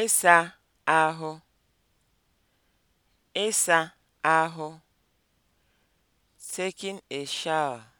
ịsa ahụ ịsa ahụ (taking a shower)